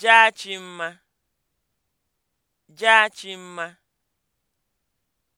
Jaa jaachimma. Jaa